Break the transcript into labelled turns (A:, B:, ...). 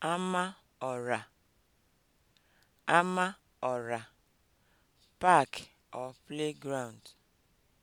A: ama ama Amaọra Park or playground